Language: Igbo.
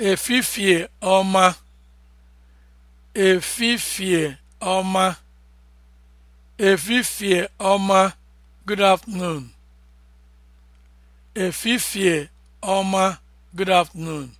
efifie ọma efifie ọma efifie ọma good afternoon efifie ọma good afternoon